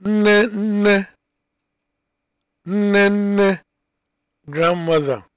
nne nne nne nne grandmother